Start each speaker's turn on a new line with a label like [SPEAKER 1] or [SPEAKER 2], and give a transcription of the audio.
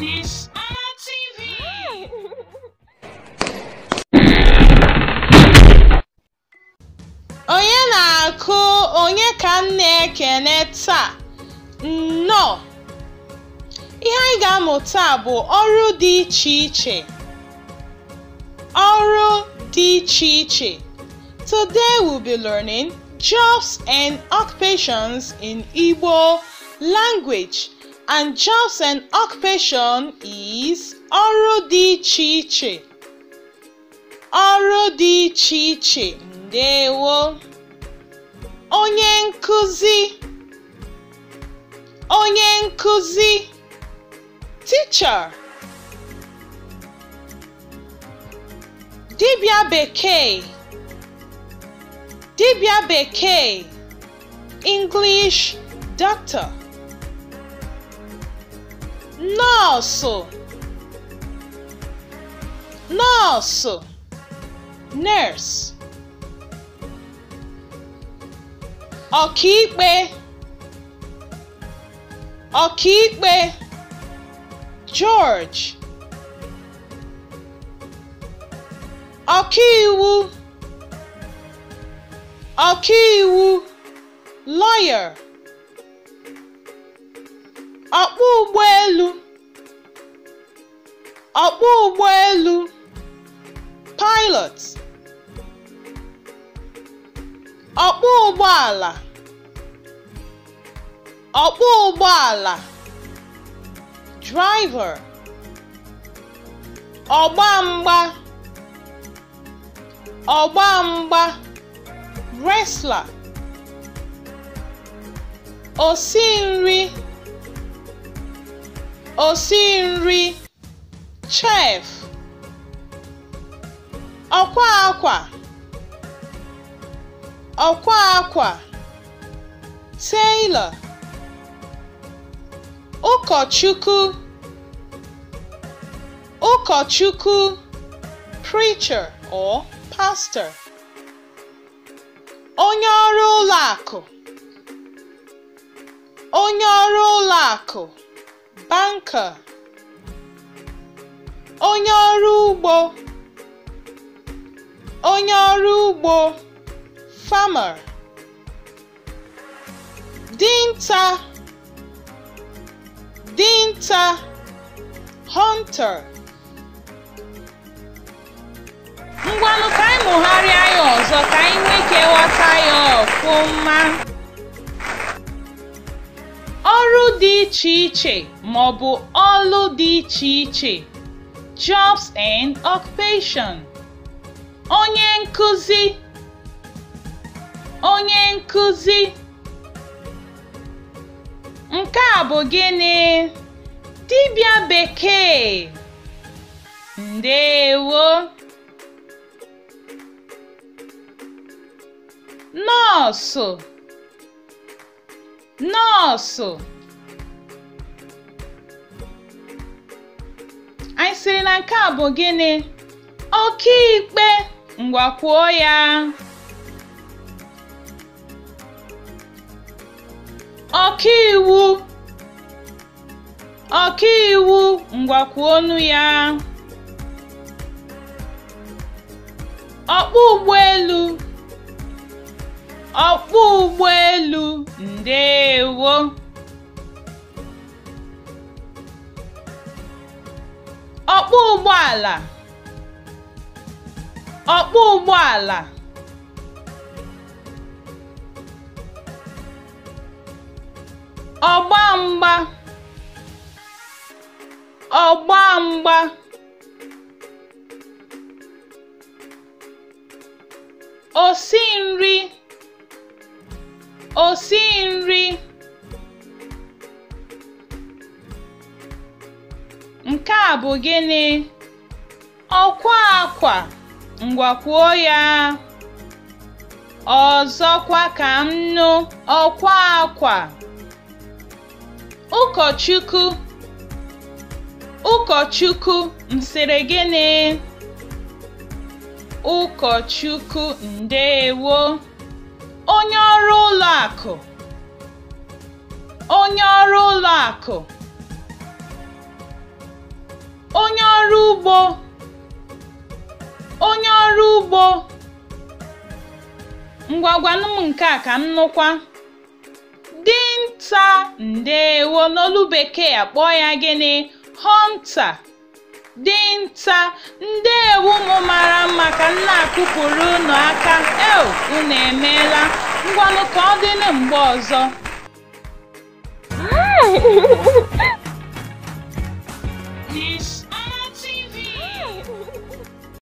[SPEAKER 1] This TV. Onye na-akụ onye ka m na-ekene taa? Nnọọ! Ihe anyị ga-amụ bụ ọrụ dị iche iche. Ọrụ dị iche iche. Today we'll be learning jobs and occupations in Igbo language and jobs and occupation is ọrụ dị iche iche ọrụ dị iche iche ndewo onye nkụzi onye nkụzi teacher dibịa bekee dibịa beke. English doctor nosso, nosso, nurse, ọkaikpe, ọkaikpe, George, ọkaiwu, ọkaiwu, lawyer. ọkpọ ụgbọelu ọkpọ ụgbọelu pilot ọkpọ ụgbọala ọkpọ ụgbọala driver ọgba mgba ọgba mgba wrestler osi nri osi nri chef ọkwa akwa ọkwa akwa tailor ụkọchukwu ụkọchukwu preacher or pastor onye ọrụ ụlọ akụ onye ọrụ ụlọ akụ banker onye ọrụ ugbo onye ọrụ ugbo farmer dinta dinta hunter ngwanụ ka anyị mụgharịa ya ọzọ ka anyị nwee ike ghọta ya ọfụma dị iche iche ma ọ bụ ọlụ dị iche iche (jobs and occupation). Onye nkuzi Onye nkụzi Nke a bụ gịnị? tibia Bekee Ndeewo Nọọsụ Nọọsụ nke a bụ gịnị? ikpe ngwakwuo ya. Ọkaiwu iwu ngwakwuo ọnụ ya. elu ụgbọelu ụgbọ ụgbọelu ndeewo ọkpọ ụgbọala ọkpọ ụgbọala ọgba mgba ọgba mgba nri osi nri Nke a bụ gịnị? Ọkwa akwa, ngwakwuo ya. Ọzọkwa ka m nụ ọkwa akwa. Ụkọchukwu Ụkọchukwu m sịrị gịnị? Ụkọchukwu ndeewo. Onye ọrụ ụlọ akụ. Onye ọrụ ụlọ akụ. onye ọrụ ugbo onye ọrụ ugbo m nke a ka m nụkwa dinta ndewo n'olu bekee akpọọ ya gịnị hunter dinta ndewo ụmụ mara mma ka m na-akụpụrụ unu aka el unu emeela ngwanụ ka ọ dịnụ mgbe ọzọ